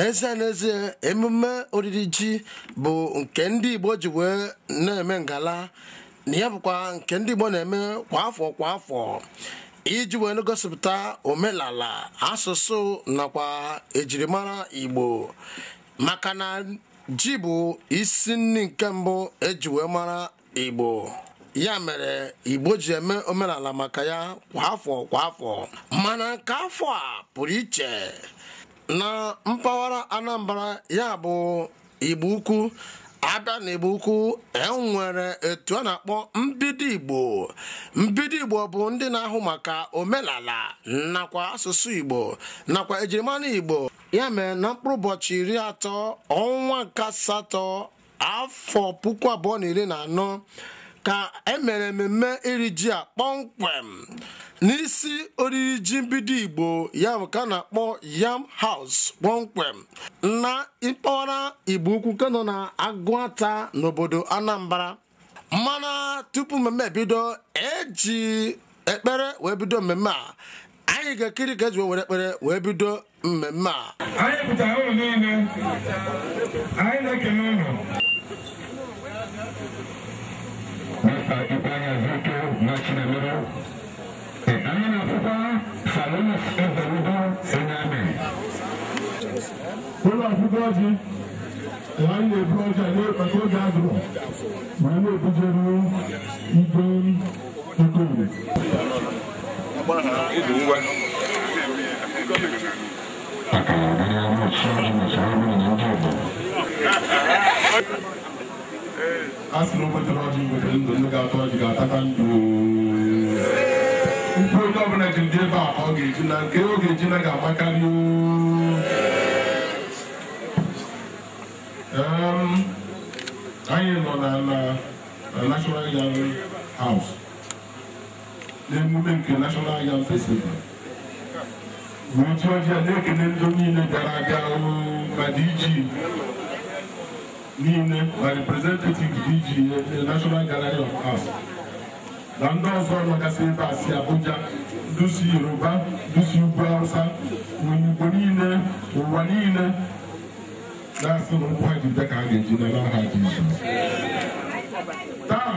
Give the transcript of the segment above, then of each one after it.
n'ezie n'ezie emume oriri ji bụ nke ndị Igbo ji wee na-eme ngala na ya bụkwa nke ndị Igbo na-eme kwa afọ kwa afọ iji wee gosiputa omenala asụsụ nakwa ejirimara Igbo maka na ji bụ isi nri nke mbụ eji wee mara Igbo ya mere Igbo ji eme omenala maka ya kwa afọ kwa afọ mana nke afọ a pụrụ iche na mpaghara Anambra ya bụ Igbo Ukwu abịa na Igbo Ukwu enwere etu a na-akpọ mbido Igbo mbido Igbo bụ ndị na-ahụ maka omenala nakwa asụsụ Igbo nakwa ejirimara Igbo ya mee na mkpụrụ ụbọchị iri atọ ọnwa nke asatọ afọ puku abụọ na iri na anọ ka emere mmemme iri ji a kpọmkwem n'isi oriri ji mbido igbo ya bụ ka na-akpọ yam house kpọmkwem na mpaghara igbo ukwu ka nọ na agụata n'obodo anambra mana tupu mmemme ebido eji ekpere wee bido mmemme a anyị ga-ekiri ka eji were ekpere wee bido mmemme a anyị pụtara ụlọ niile anyị na-ekele ụlọ ifanya zito mwachi na mero amina fufa salonas evaludo ename wọ́n wá fún bọ́ọ̀dì wọ́n á lè fún ọjà ní ọjọ́ gàdùrọ̀ wọ́n Thank you. asị na ndụ ndụ ga-atọ ọjị ga-ataka ndụ mkpu onye ọbụla ji dị ebe a ọ ga-eji na nke ọ ga-eji na ga-amakarị anyị nọ na National Yam House n'emume nke National Yam Festival wee ji ọjị a na-ekele ndị niile bịara abịa ma dị niile na representative DGA National Gallery of na ndị ọzọ nọgasị ebe a si Abuja dusi Yoruba ndusi ugwu Hausa Igbo niile ụwa niile na-asị nkwagide ka a ga-eji n'ala ha ji izu taa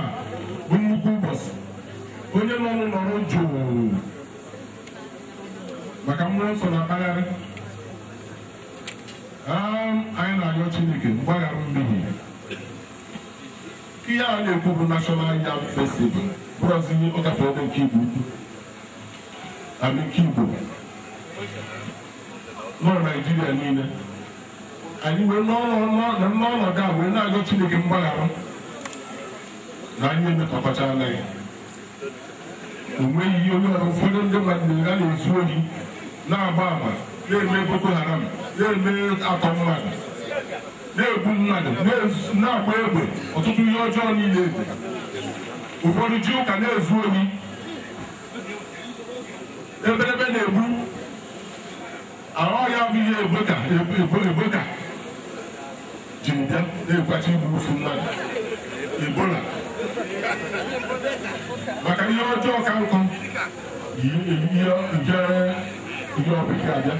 bụ nnukwu ụbọchị onye nọ n'ụlọ jụụ maka mmụọ nsọ na mpaghara Um, anyị na-arịọ chineke mgbaghara mmehie ihe a na-ekwu bụ nashọnal yam festival bụrụzi ihe ọgafe ebe nke igbo ukwu amike igbo nọ naijiria niile anyị wee n'ọnọdụ a wee na-arịọ chineke mgbaghara na anyị emekọtachala ya o nweghị ihe onye ọrụ ụfọdụ ndị mmadụ a na-ezu ohi na-agba ama na-eme boko haram na-eme akammadụ na-egbu mmadụ na akwa egbe ọtụtụ ihe ọjọọ niile ụfọdụ ji ụka na-ezu ohi ebelebe na-egbu ahụ ya bụ ihe eboka ji bịa na-egwachi igbu ofu mmadụ ebola maka ihe ọjọọ ka nkụ ihe ọbịa abịa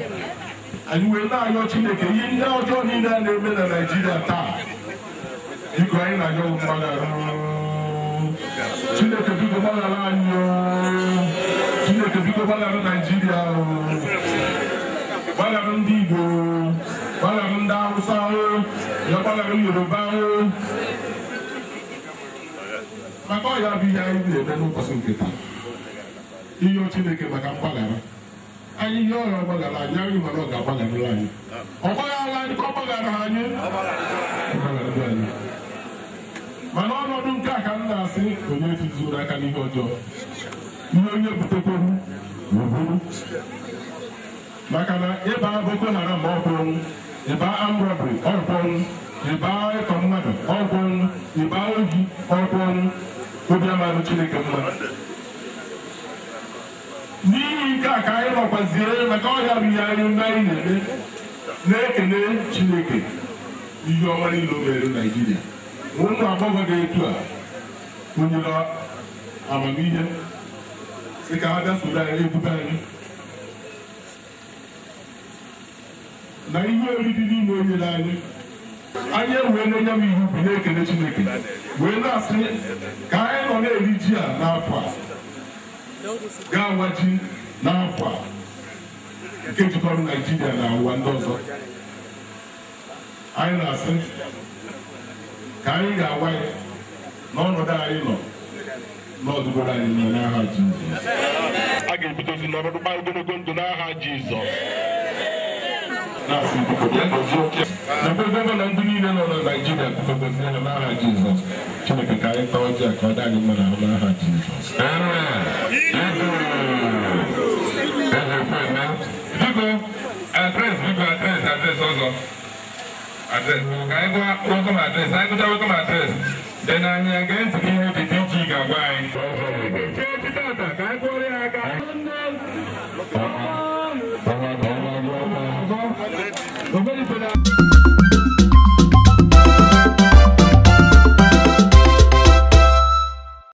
anyị wee na-arịọ chineke ihe ndị ọjọọ niile a na-eme na naijiria taa biko anyị na-arịọ mgbaghara chineke biko gbaghara anyị chineke biko gbaghara naijiria gbaghara ndị igbo gbaghara ndị hausa ya gbaghara yoruba maka ọ ya bụ ihe anyị na-eme n'ụbọchị nke taa iyo chineke maka mgbaghara anyị ihe ọrịa ọgbaghara anyị anyị nwere ọ ga-agbagharịrị anyị ọgbaghara anyị ka ọ gbaghara anyị mana ọnọdụ nke a ka m na-asị onye tụzuru aka n'ihe ọjọọ ihe onye butekwuru n'oburu maka na ịba boko haram ọkwụrụ ịba amrọbri ọkwụrụ ịba ịkọ mmadụ ọkwụrụ ịba ohi ọkwụrụ obi amarụ chineke mmadụ n'ihi nke a ka anyị nọkwaziere maka ọhịa ihe anyị mgbe anyị na-eme na-ekele chineke ihe ọma niile mere naijiria ụmụ agbọghọ dị etu a kụnyere amamihe sị ka ha bịa soro anyị ebute anyị na ihe oriri niile onye n'anyị anyị wee na-enye m ihe bụ na-ekele chineke wee na-asị ka anyị nọ na-eri ji a n'afọ a ga-awaji n'afọ a nke jikọrọ naijiria na ụwa ndị ọzọ anyị na-asị ka anyị ga-awa ya n'ọnọdụ anyị nọ n'ọdụgoro anyị nọ n'aha Jizọs a ga-ebidozi n'ọnọdụ gba ogologo ndụ n'aha Jizọs ekwebebe na ndị niile nọ na naijiria Naịjirịa kpukpebezire n'aha Jizọs Chineke ka anyị taa ọjị ka ọ dị anyị mma n'ahụ n'aha Jizọs biko adres biko adres adres ọzọ adres ka anyị gwa welcome adres anyị gụta welcome adres dị na anyị ga ntị gị ihe dị iche ị ga-agwa anyị ka anyị gwọrọ ya aka Remember,